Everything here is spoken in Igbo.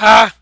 ha ah!